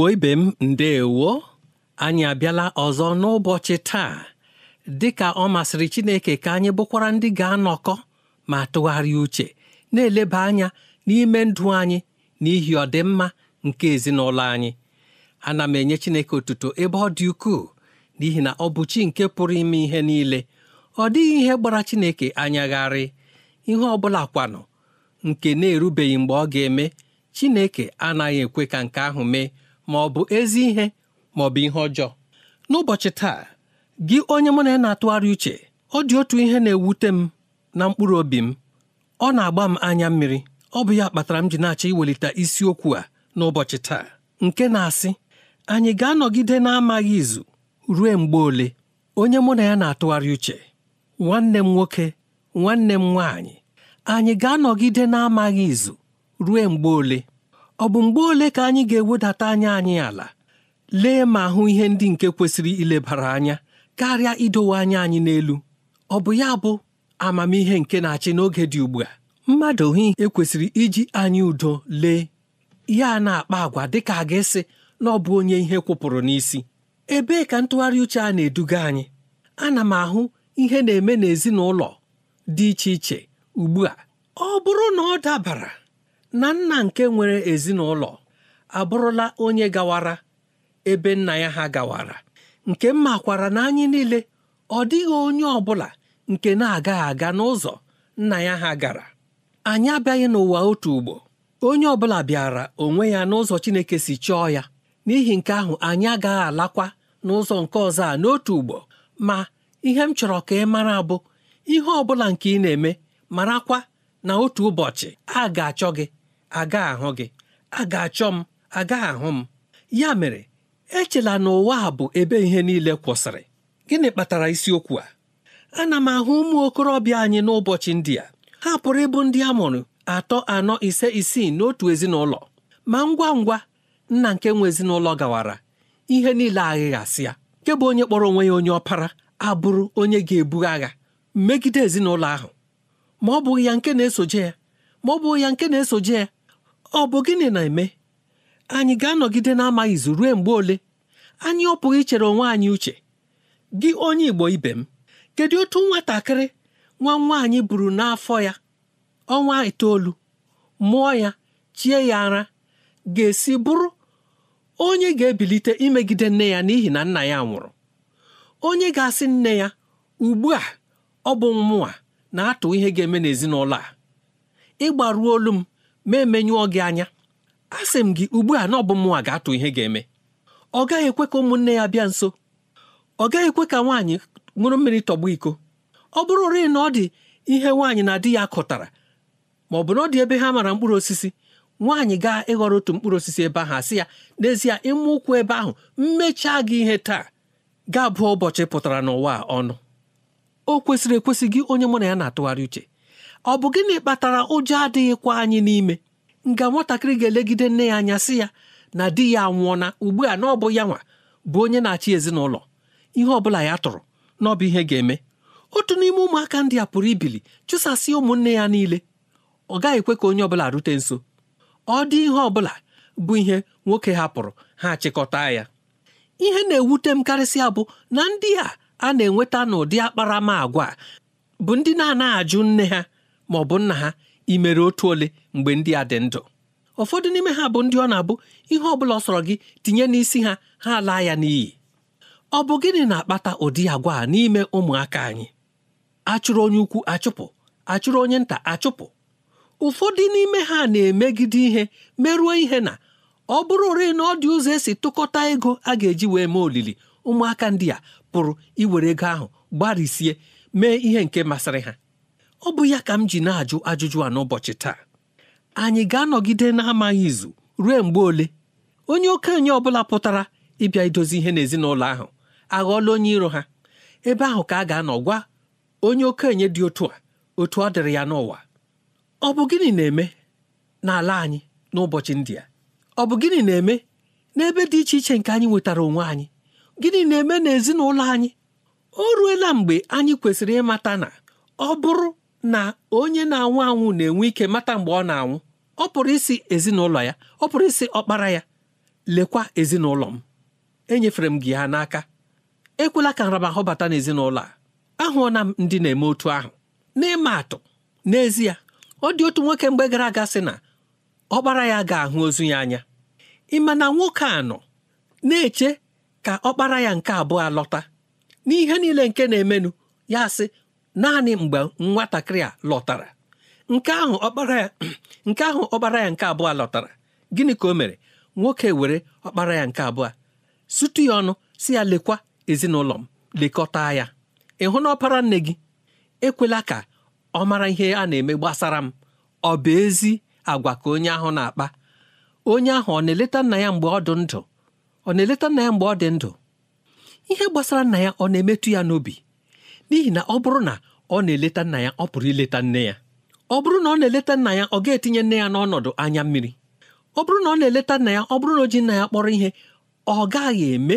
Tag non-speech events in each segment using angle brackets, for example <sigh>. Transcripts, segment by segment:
Igbo ibe m ndeewo anyị abịala ọzọ n'ụbọchị taa dịka ọ masịrị Chineke ka anyị bụkwara ndị ga-anọkọ ma tụgharịa uche na-eleba anya n'ime ndụ anyị n'ihi ọdịmma nke ezinụlọ anyị ana m enye Chineke otuto ebe ọ dị ukwuu n'ihi na ọ bụ chi nke pụrụ ime ihe niile ọ dịghị ihe gbara Chineke anyagharị ihe ọ bụla kwanụ nke na-erubeghị mgbe ọ ga-eme Chineke anaghị ekwe ka nke ahụ mee ma ọ bụ ezi ihe ma ọ bụ ihe ọjọọ n'ụbọchị taa gị onye mụ na ya na-atụgharị uche ọ dị otu ihe na-ewute m na mkpụrụ obi m ọ na-agba m anya mmiri ọ bụ ya kpatara m ji na-achọ iwelite isiokwu a n'ụbọchị taa nke na-asị anyị ga-anọgide na-amaghị izu ruo mgbe ole onye mụ na ya na-atụgharị uche nwanne m nwoke nwanne m nwaanyị anyị ga-anọgide na-amaghị izu ruo mgbe ole ọ bụ mgbe ole ka anyị ga-ewedata anya anyị ala lee ma hụ ihe ndị nke kwesịrị ilebara anya karịa idowe anya anyị n'elu ọ bụ ya bụ amamihe nke na-achị n'oge dị ugbu a mmadụ hụ ekwesịrị iji anyị udo lee ya na-akpa agwa dịka a ga-esi na ọ bụ onye ihe kwụpụrụ n'isi ebee ka ntụgharị uche a na-eduga anyị ana m ahụ ihe na-eme n'ezinụlọ dị iche iche ugbu a ọ bụrụ na ọ dabara na nna nke nwere ezinụlọ abụrụla onye gawara ebe nna ya ha gawara nke m makwara na anyị niile ọ dịghị onye ọ bụla nke na-agaghị aga n'ụzọ nna ya ha gara anyị abịaghị n'ụwa otu ugbo onye ọ bụla bịara onwe ya n'ụzọ Chineke si chọọ ya n'ihi nke ahụ anyị agaghị alakwa n'ụzọ nke ọzọ a n'otu ugbo ma ihe m chọrọ ka ị mara bụ ihe ọ bụla nke ị na-eme marakwa na otu ụbọchị a ga-achọ gị aga ahụ gị a ga-achọ m aga ahụ m ya mere echela na ụwa a bụ ebe ihe niile kwụsịrị gịnị kpatara isiokwu a ana m ahụ ụmụ okorobịa anyị n'ụbọchị ndị a ha pụrụ ịbụ ndị a mụrụ atọ anọ ise isii n'otu ezinụlọ ma ngwa ngwa nna nke nwe ezinụlọ gawara ihe niile aghịghasịa nke bụ onye kpọrọ onwe ya onye ọpara abụrụ onye ga-ebu agha megide ezinụlọ ahụ ma ọ bụghị ya nke na-esoje ya ma ọ bụghị ya nke na-esoje ya ọ bụ gịnị na-eme anyị ga-anọgide n'amaghị amaghị izu ruo mgbe ole anyị ọ pụghị ichere onwe anyị uche gị onye Igbo ibe m kedu otu nwatakịrị nwa nwaanyị buru n'afọ ya ọnwa itoolu mụọ ya chie ya ara ga-esi bụrụ onye ga-ebilite imegide nne ya n'ihi na nna ya nwụrụ onye ga-asị nne ya ugbu a ọ bụ mmụọ na-atụ ihe ga-eme n'ezinụlọ a olu m ma gị anya a sị m gị ugbu a na ọ bụ mụnwa ga-atụ ihe ga-eme ọ gaghị ekwe ka ụmụnne ya bịa nso ọ gaghị ekwe ka nwaanyị ṅụrụ mmiri tọgbọ iko ọ bụrụ rịị na ọ dị ihe nwaanyị na di ya kọtara ma ọ bụ na ọ dị ebe ha mara mkpụrụ osisi nwaanyị gaa ịghọrọ otu mkpụrụ osisi ebe ahụ asị ya n'ezie ịmụ ụkwụ ebe ahụ mmechaa gị ihe taa ga-abụ ụbọchị pụtara n'ụwa ọnụ o kwesịrị ekwesị gị onye mụ na ya na-atụgharị uche ọ bụ gịnị kpatara ụjọ adịghịkwa anyị n'ime nga nwatakịrị ga-elegide nne ya anya sị ya na di ya anwụọna ugbu a na ọ bụ ya nwa bụ onye na-achị ezinụlọ ihe ọ bụla ya tụrụ na ọ bụ ihe ga-eme otu n'ime ụmụaka ndị a pụrụ ibili chụsasị ụmụnne ya niile ọ gaghị ekwe ka onye ọbụla rute nso ọ dị ihe ọbụla bụ ihe nwoke hapụrụ ha chịkọta ya ihe na-ewute m karịsịa bụ na ndị a a na-enweta n'ụdị agwa bụ ndị na-anaghị ajụ nne ha ma ọ bụ nna ha ị mere otu ole mgbe ndị a dị ndụ ụfọdụ n'ime ha bụ ndị ọ na-abụ ihe ọ bụla ọ sọrọ gị tinye n'isi ha ha laa ya n'iyi ọ bụ gịnị na-akpata ụdị agwa a n'ime ụmụaka anyị achụrụ onye ukwu achụpụ achụrụ onye nta achụpụ ụfọdụ n'ime ha na-emegide ihe merụọ ihe na ọ bụrụ ore na ọ dị ụzọ esi tụkọta ego a ga-eji wee mee olili ụmụaka ndị a pụrụ iwere ego ahụ gbarisie mee ihe nke masịrị ha ọ bụ ya ka m ji na-ajụ ajụjụ a n'ụbọchị taa anyị ga-anọgide na-amaghị izu ruo mgbe ole onye okenye ọbụla pụtara ịbịa idozi ihe n'ezinụlọ ahụ aghọọla onye iro ha ebe ahụ ka a ga-anọ gwa onye okenye dị otu a otu ọ dịrị ya n'ụwa ọ bụ gịnị na-eme n'ala anyị n'ụbọchị ndị a ọ bụ gịnị na-eme n'ebe dị iche iche nke anyị nwetara onwe anyị gịnị na-eme n'ezinụlọ anyị o ruela mgbe anyị kwesịrị ịmata na ọ bụrụ na onye na-anwụ anwụ na-enwe ike mata mgbe ọ na-anwụ ọ pụrụ isi ezinụlọ ya ọ pụrụ isi ọkpara ya lekwa ezinụlọ m enyefere m gị ha n'aka ekwela ka nramahụ bata n'ezinụlọ a ahụọna m ndị na-eme otu ahụ n'ịma atụ n'ezie ọ dị otu nwoke mgbe gara aga sị na ọkpara ya ga-ahụ ozu ya anya ịma na nwoke a nọ na-eche ka ọkpara ya nke abụọ lọta n'ihe niile nke na-emenụ ya sị naanị mgbe nwatakịrị a lọtara nke ahụ ọkpara ya <clears throat> nke ahụ ọkpara ya nke abụọ lọtara gịnị ka o mere nwoke were ọkpara ya nke abụọ sutu ya ọnụ si ya lekwa ezinụlọ m lekọta ya ịhụ na ọpara nne gị ekwela ka ọ mara ihe a na-eme gbasara m ọ bụ ezi agwa ka onye ahụ na-akpa onye ahụ ọ na-eleta nna ya mgbe ọ dị ndụ ọ na-eleta nna ya mgbe ọ dị ndụ ihe gbasara nna ya ọ na-emetụ ya n'obi n'ihi na ọ bụrụ na ọ na-eleta nna ya ọ pụrụ ileta nne ya ọ bụrụ na ọ na-eleta nna ya ọ ga-etinye nne ya n'ọnọdụ anya mmiri ọ bụrụ na ọ na-eleta nna ya ọ bụrụ na o ji nna ya kpọrọ ihe ọ gaghị eme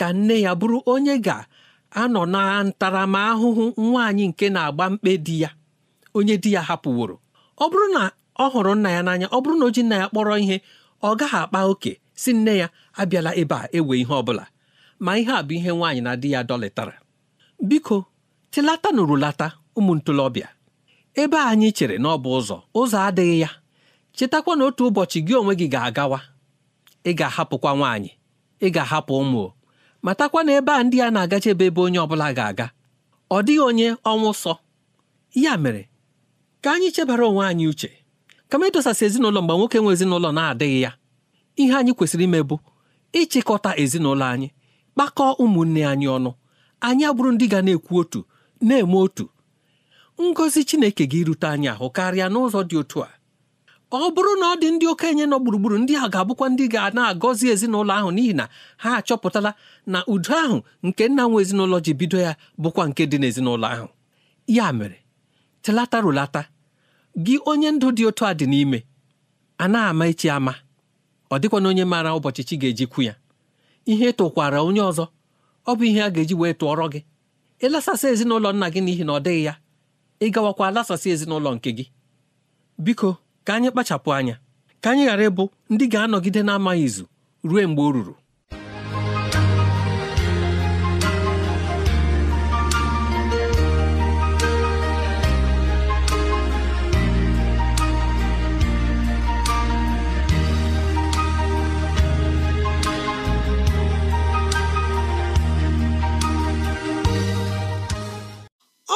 ka nne ya bụrụ onye ga-anọ na ntaramahụhụ nwaanyị nke na-agba mkpe di ya onye di ya hapụworo ọ bụrụ na ọ hụrụ nna ya n'anya ọ bụrụ na o ji nna ya kpọrọ ihe ọ gaghị akpa oke si nne ya abịala ebe a ewe ihe ọ bụla ma ihe a bụ ihe nwaanyị na di ya dọlịtara biko tilata nụrụ lata ụmụ ntolobịa ebe anyị chere na ọ bụ ụzọ ụzọ adịghị ya chetakwa na otu ụbọchị gị onwe gị ga-agawa ị ga-ahapụkwa nwaanyị ị ga-ahapụ ụmụ matakwa na ebe a ndị a na-agachebe ebe onye ọbụla ga-aga ọ dịghị onye ọnwụ sọ ya mere ka anyị chebara onwe anyị uche kama ịdọsasị ezinụlọ mgbe nwoke nwe ezinụlọ na-adịghị ya ihe anyị kwesịrị ime bụ ịchịkọta ezinụlọ anyị kpakọọ ụmụnne anyị ọnụ anyị abụrụ ndị ga na-ekwu otu na-eme otu ngọzi Chineke gị rute anyị ahụ karịa n'ụzọ dị otu a ọ bụrụ na ọ dị ndị okenye nọ gburugburu ndị a ga-abụkwa ndị ga na-agọzi ezinụlọ ahụ n'ihi na ha achọpụtala na udo ahụ nke nna nwe ezinụlọ ji bido ya bụkwa nke dị n'ezinụlọ ahụ ya mere telata rụlata gị onye ndụ dị otu a dị n'ime a na-ama echi ama ọ na onye maara ụbọchị chi ga-eji ya ihe tụkwara onye ọzọ ọ bụ ihe a ga-eji wee tụọrọ gị ịlasasị ezinụlọ nna gị n'ihi na ọ dịghị ya ị gawakwa lasasị ezinụlọ nke gị biko ka anyị kpachapụ anya ka anyị ghara ịbụ ndị ga-anọgide na-amaghị izu ruo mgbe o ruru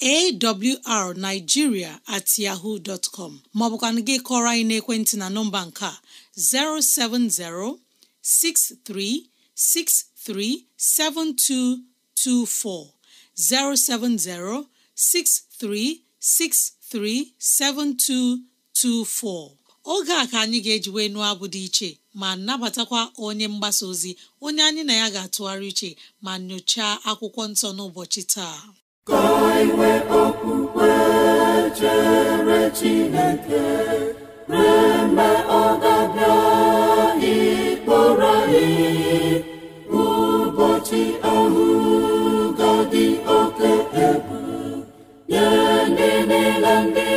awrnigeria at yahoo dot com maọbụkwanụ gị kọrọ anyị n'ekwentị na nọmba nke a 070 6363 7224 070 6363 7224 oge a ka anyị ga-ejiwe nụọ abụ dị iche ma nabatakwa onye mgbasa ozi onye anyị na ya ga-atụgharị iche ma nyochaa akwụkwọ nsọ n'ụbọchị taa ka inwe okwukwe chere Chineke ree mgbe ọ ga-abịa ịkpọrọ anyị ụbọchị ahụ ga-adị oke egwu nye ndị niile ndị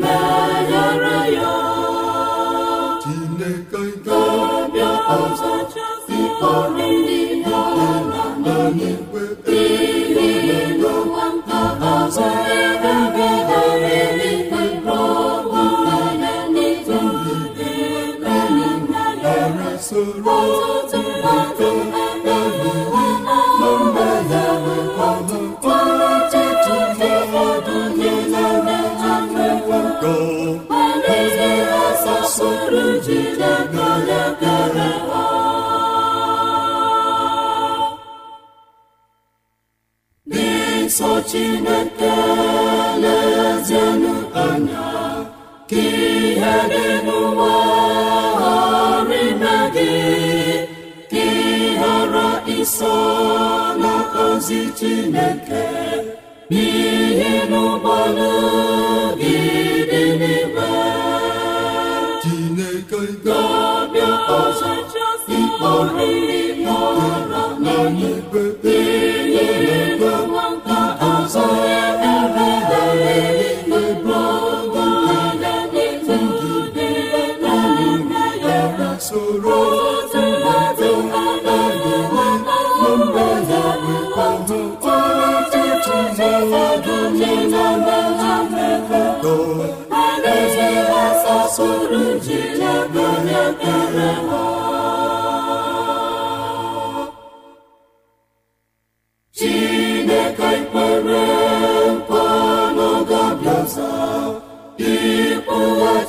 meghara ya Chineke ga-abịa ọzọ ịkpọrọ ndị ha na anyị chineke lezienụ anya ka dị n'ụwa ghara ime gị chineke n'ihi chineke ga-abịa ọzọ ikpọrọ soro ji na-abụ onye ekpere ha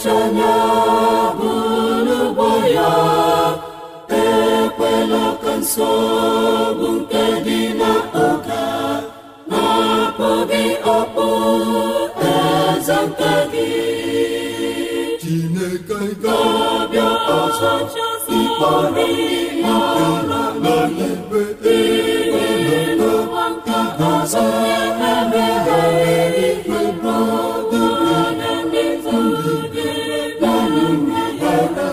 ọchịanya bụrụgbo ya ekwela ka nsogbu nke dị n'oge na-apụ gị ọkpụ nke ọzọ ịkpọrọ na n'ikpe ịgwe na ọzọ.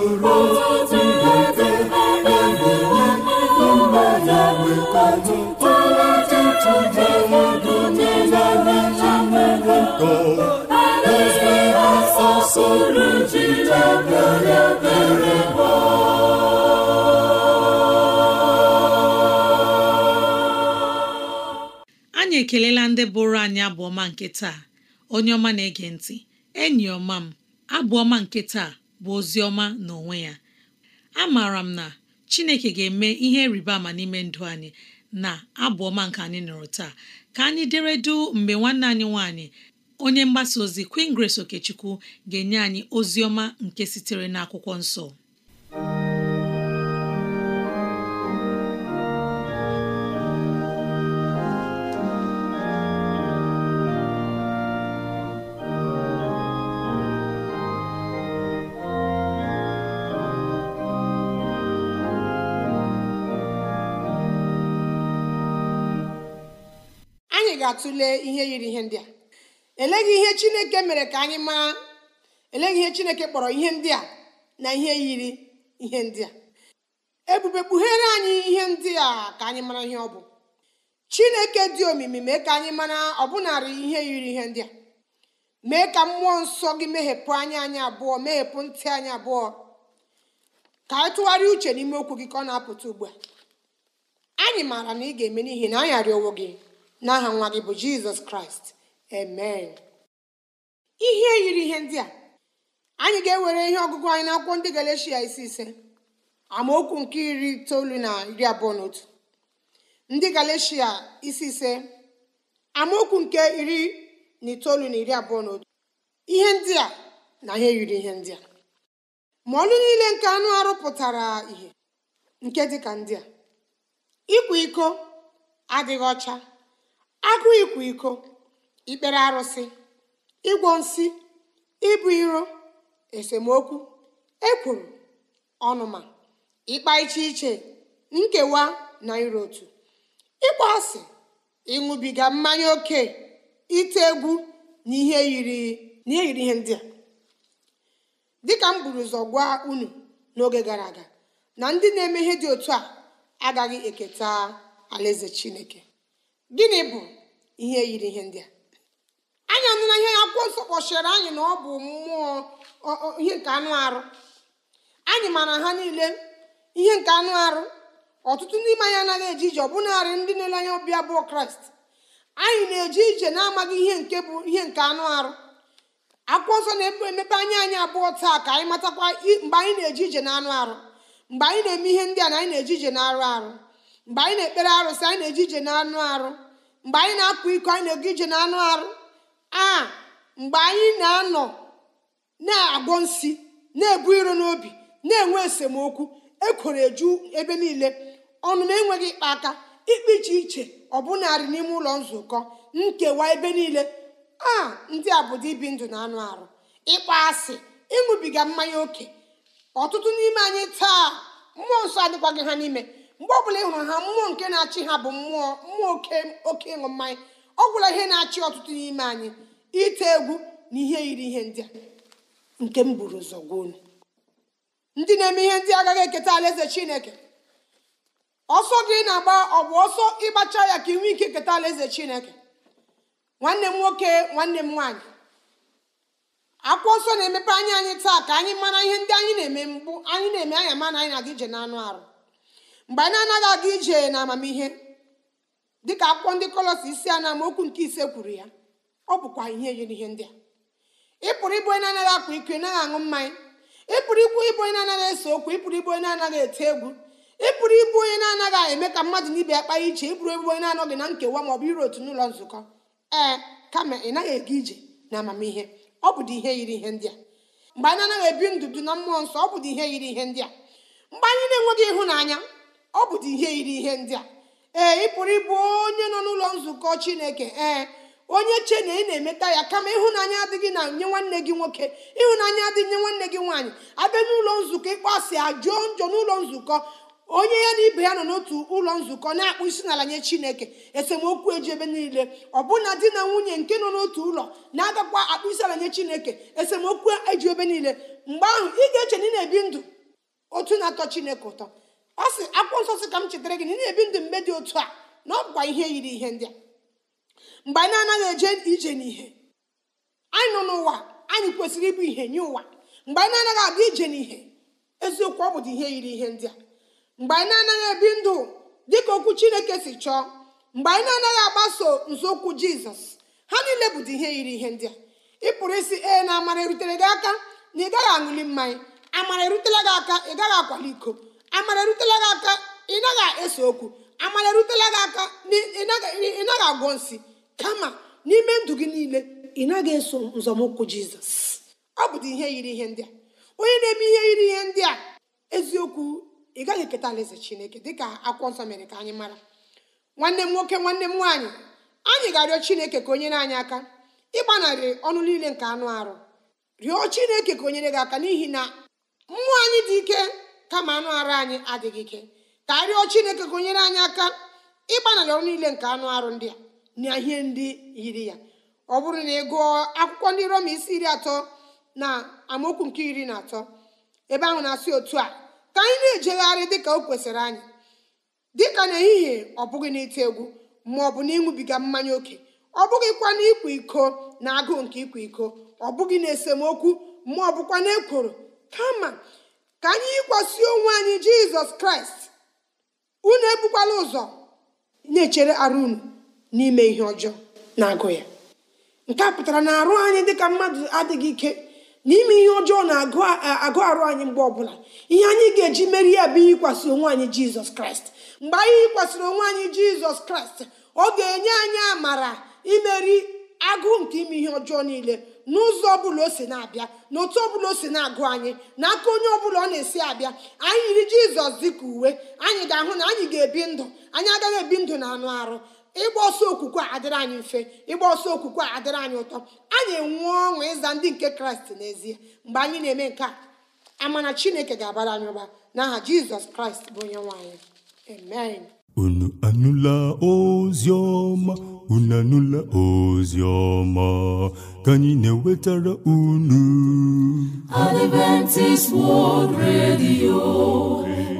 anyị ekelela ndị bụrụ anyị abụọma nke taa onye ọma na-ege ntị enyi ọma m abụọma nke taa bụ ozi ọma n'onwe ya a maara m na Chineke ga-eme ihe rịba ama n'ime ndụ anyị na abụ ọma nke anyị nụrụ taa ka anyị deredu mgbe nwanne anyị nwanyị onye mgbasa ozi Queen Grace Okechukwu ga-enye anyị ozi ọma nke sitere n'akwụkwọ nsọ ga-atụle ihe yiri ihe ndị a eleghị ihe chineke mere ka anyị maa eleghị ihe chineke kpọrọ ihe ndị a na ihe yiri ihe ndị a ebube kpughere anyị ihe ndị a ka anyị mara ihe ọ bụ chineke dị omimi mee ka anyị mara ọbụnarị ihe yiri ihe ndị a mee ka mmụọ nsọ gị meghepụ anya anyị abụọ meghepụ ntị anyị abụọ ka anyị tụgharịa uche n'ime okwu gị ka ọ na-apụta ugbu a anyị maara na ị ga-eme n'ihi na anyị arịọwo gị n'aha nwa gị bụ jizọs kraịst amen ihe e yiri ihe ndị a anyị ga-ewere ihe ọgụgụ anyị ndị isi ise amaokwu nke iri itoolu na iri abụọ na otu ndị galeshia isi ise amaokwu nke iri na itoolu na iri abụọ na otu ihe ndị a na ihe yiri ihe ndị a ma ọlụ niile nke anụ arụ pụtara ihe nke dịka ndị a ịkwa iko adịghị ọcha akụ ịkwa iko ikpere arụsị ịgwọ nsị ịbụ iro esemokwu ekwuru ọnụma ịkpa iche iche nkewa na iro otu ịkpọ asị ịṅụbiga mmanya oke ite egwu na ihe yiri ihe ndị a dịka m buru ụzọ gwa unu n'oge gara aga na ndị na-eme ihe dị otu a agaghị eketa alaeze chineke gịnị bụ ihe yiri ihe ndị a anyị anụla ihe akwụkwọ nsọ kpọchiri anyị na ọ bụ mmụọ ihe nke anụ arụ anyị mara ha niile ihe nke anụ arụ ọtụtụ n'ime anyị anaghị eje ije ọbụnarị ndị na-ele anya ọbịa bụ kraịst anyị na-eje ije na-amaghị ihe nke bụ ihe nke anụ arụ akwụkwọ nsọ na-emepe anya anyị abụọ taa ka anyị matakwa mgbe anyị na-eje ije na anụ arụ mgbe anyị na-eme ihe ndị a na anyị na-eje ije na arụ arụ mgbe anyị na-ekpere arụsị anyị na eji ije na anụ arụ mgbe anyị na akpụ iko anyị na ego ije na anụ arụ a mgbe anyị na-anọ na-agwọ nsi na-ebu iro n'obi na-enwe esemokwu ekwere eju ebe niile ọnụ enweghị ịkpa aka ikpe iche iche ọbụnarị n'ime ụlọ nzukọ nkewa ebe niile a ndị a bụ ibi ndụ na anụ arụ ịkpa asị ịṅụbiga mmanya oke ọtụtụ n'ime anyị taa mmụọ nsọ adịkwaghị ha n'ime mgbe ọbụla ị hụrụ ha mmụọ nke na-achị ha bụ mmụọ mmụọ oke ịṅụ mmanya ọ gwụla ihe na-achị ọtụtụ n'ime anyị ite egwu na ihe yiri ihe ndị a nke m buru ụzọ ndị na-eme ihe ndị agaghị eketa alaeze chineke ọsọ gị na-agba ọ bụ ọsọ ịgbacha ya ka ị ike eketa alaeze chineke nwanne m nwoke nwanne m nwaanyị akwụkwọ nsọ na-emepe anya anyị taa ka anyị mara ihe ndị anyị na-eme mbụ anyị na-eme anya mana na anyị na-aga ije n'anụ arụ mgbe anyị anaghị aga ije na amamihe dịka akwụkwọ ndị kọlọs isi a na nke ise kwuru ya ọ bụkwa ihe yiri ihe ndị a Ịpụrụ ịbụ onye na-anaghị akpa ike naghị aṅụ mmanya Ịpụrụ pụrụ ịbụ ịbụ onye na-anaghị ese okwu Ịpụrụ ịbụ onye na-anaghị eti egwu ịpụrụ ịbụ onye na-anaghị eme ka mmadụ na ibe ya kpaa iche Ịpụrụ ịbụ onye na-anọghị na nkewa ma ọ bụ iru otu n'ụlọ nzukọ ee kama ị naghị aga ije na amamihe ọ bụdị ihe yiri ihe ndị a mgbe anyị anaghị ebi ndụ na mmụọ nsọ ọ bụdị ihe yiri ihe ndị a mgbe anyị na-enweghị ịhụnanya ọ bụdị ihe yiri ihe ndị a ee ị pụrụ ịbụ onye nọ n'ụlọ nzukọ chineke ee onye che na ị na-emeta ya kama ịhụnanya adịghị na nye nwanne gị nwoke ịhụnanya adịghị nye nwanne gị nwaanyị abịa n'ụlọ nzukọ ịkpọasị ajụọ njọ n'ụlọ nzukọ onye ya na ibe ya nọ n'otu ụlọ nzukọ na-akpụ isi n'ala nye chineke esemokwu eji ebe niile ọbụna di na nwunye nke nọ n'otu ụlọ na-agakwa akpụ isi ala nye chineke esemokwu eji ebe niile mgbe ahụ ị ga-eche na ị na-ebi ndụ otu na-atọ chineke ụtọ ọ sị akwụkwọ nsọ sị ka m chetara gị na ị na-ebi ndụ mgbe dị otu a na ọ bụkwa ihe yiri ihe ndị a mgbe anyị anaghị eje ije n'ihe anyị nọ n'ụwa anyị kwesịrị ịbụ ihe nye ụwa mgbe anyị na-anaghị aga ije n'ihe eziokwu ọ bụ dị ihe yiri ihe ndị a mgbe anyị na-anaghị ebi ndụ dị ka okwu chineke si chọọ mgbe anyị na-anaghị agbaso nzọụkwụ jizọs ha niile bụ dị ihe yiri ihe ndị a ị pụrụ isi ee na amara erutere gị aka na ị gaghị aṅụli mmanya amara erutela gị aka ị gaghị akwali iko amara erutela gị aka ị naghị ese okwu amara erutela gị aka ị naghị agwọ nsị kama n'ime ndụ gị niile ị naghị eso nzọmụkwụ jizọs ọ bụdị ihe yiri ihe ndị a onye na-eme ihe yiri ihe ndị a eziokwu ị gaghị eketa alaeze chineke dịka akwụkwọ nsọ mere ka anyị mara nwanne m nwoke nwanne m nwaanyị anyị ga-arịọ chineke ka onye anyị aka ịgbanarị ọnụ niile nke anụ arụ rịọ chineke ka onyere gị aka n'ihi na mmụọ anyị dị ike kama anụ arụ anyị adịghị ike ka arịọ chineke gụnyere anyị aka ịgbanarị ọrụ niile nke anụ arụ ndị a na ihe ndị yiri ya ọ bụrụ na ị gụọ akwụkwọ ndị roma isi iri atọ na amaokwu nke iri na atọ ebe ahụ na-asị otu a ka anyị na-ejegharị dịka o kwesịrị anyị dịka n'ehihie ọ bụghị n'ite egwu ma ọ bụ mmanya oke ọ bụghịkwa n'ịkwa iko na agụụ nke ịkwa iko ọ bụghị na esemokwu ma ọ bụkwa n'ekworo kama ka anyị yikwasị onwe anyị jizọs kraịst unu ebukwala ụzọ na-echere arụ unu n'ime ihe ọjọọ na-agụ ya nke a pụtara na arụ anyị dịka mmadụ adịghị ike n'ime ihe ọjọọ na-agụ arụ anyị mgbe ọbụla ihe anyị ga-eji meri ya bụ yikwasị onwe anyị jizọs kraịst mgbe anyị yikwasịrị onwe anyị jizọs kraịst ọ ga-enye anyị amara imeri agụụ nke ime ihe ọjọọ niile n'ụzọ ọbụla o si na-abịa n'otu ọbụla o si na-agụ anyị n'aka onye ọbụla ọ na-esi abịa anyị yiri jizọs dịka uwe anyị ga-ahụ na anyị ga-ebi ndụ anyị agaghị ebi ndụ na anụ arụ ịgba ọsọ okwukwe adịrị anyị mfe ịgba ọsọ okwukwe adịrị anyị ụtọ anyị enwe ọṅụ ịza ndị nke kraịst n'ezie mgbe anyị na-eme nke a amana chineke ga-abara anyị ụba n'aha jizọs kraịst bụ onye nwaanyị unu anụla ozi unu anụla ozi ọma ka anyị na-ewetara unu Adventist World Radio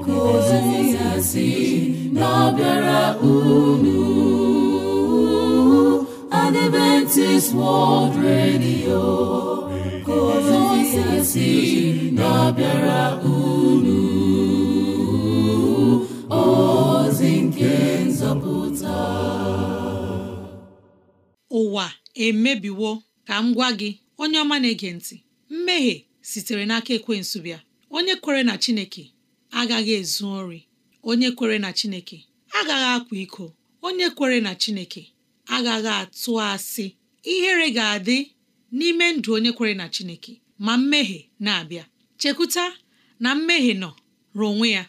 ka si na-abịara unu Adventist World Radio ka si na-abịara unu emebiwo ka m gwa gị onye ọma na-ege ntị mmehie sitere n'aka ekwensu bịa onye kwere na Chineke agaghị ezu ori onye kwere na Chineke agaghị akwa iko onye kwere na Chineke agaghị atụ asị ihere ga-adị n'ime ndụ onye kwere na Chineke ma mmehie na-abịa chekwuta na mmehie nọ ruo onwe ya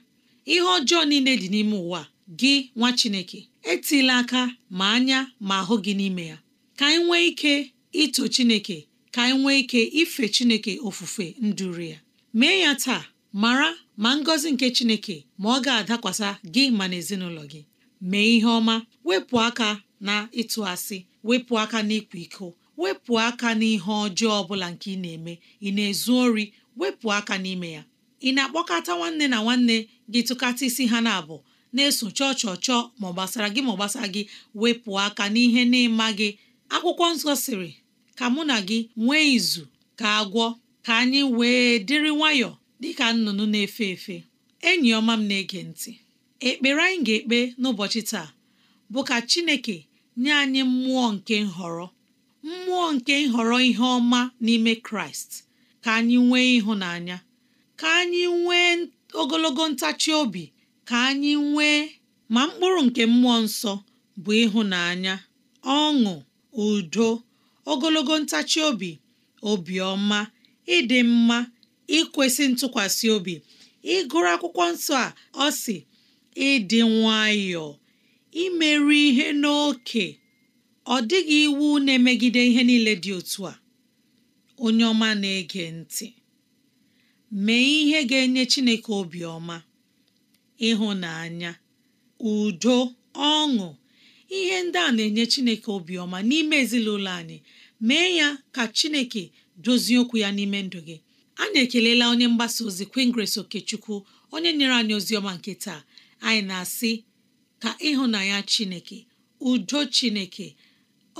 ihe ọjọọ niile dị n'ime ụwa gị nwa Chineke etila aka ma anya ma ahụ gị n'ime ya ka anyị nwee ike ito Chineke ka anyị nwee ike ife Chineke ofufe nduru ya mee ya taa mara ma ngọzi nke Chineke ma ọ ga-adakwasa gị ma na ezinụlọ gị mee ihe ọma wepụ aka na ịtụ asị wepụ aka na ịkwa iko wepụ aka n'ihe ọjọọ ọbụla nke ị na-eme ị na-ezu ori wepụ aka n'ime ya ị na-akpọkọta nwanne na nwanne gị tụkata isi ha na-abụ na-eso chọọ chọọ chọọ ma ọ gbasara gị ma ọ gbasara gị wepụ aka n'ihe na-ịma gị akwụkwọ nsọ sịrị ka mụ na gị nwee izu ka agwọ ka anyị wee dịrị nwayọọ ka nnụnụ na-efe efe enyi ọma m na-ege ntị ekpere anyị ga-ekpe n'ụbọchị taa bụ ka Chineke nye anyị mmụọ nke nhọrọ mmụọ nke nhọrọ ihe ọma n'ime Kraịst ka anyị nwee ịhụnanya ka anyị nwee ogologo ntachi obi ka anyị nwee ma mkpụrụ nke mmụọ nsọ bụ ịhụnanya ọṅụ udo ogologo ntachi obi obiọma ịdị mma ikwesị ntụkwasị obi ịgụrụ akwụkwọ nsọ a ọ sị ịdị nwayọọ imerụ ihe n'oke ọ dịghị iwu na-emegide ihe niile dị otu a onye ọma na-ege ntị mee ihe ga-enye Chineke obiọma ịhụnanya udo ọṅụ ihe ndị a na-enye chineke obiọma n'ime ezinụlọ anyị mee ya ka chineke dozie okwu ya n'ime ndụ gị anyị ekelela onye mgbasa ozi Queen Grace Okechukwu onye nyere anyị ozi ọma nke taa anyị na-asị ka ịhụnanya chineke udo chineke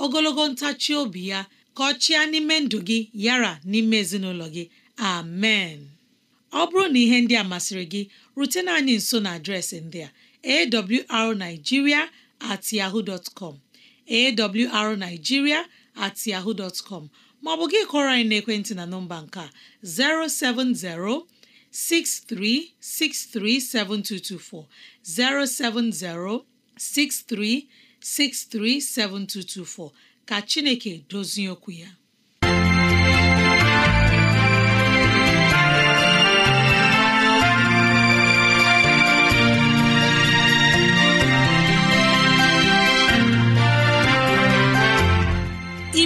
ogologo ntachi obi ya ka ọ chịa n'ime ndụ gị yara n'ime ezinụlọ gị amen ọ bụrụ na ihe ndị a masịrị gị rutena anyị nso na adreesị ndị a awrnigeria at yahoo dot com maọbụ gị kọrọ anyị n'ekwentị na nọmba nke a 070 63637224 070 63637224 ka Chineke dozie okwu ya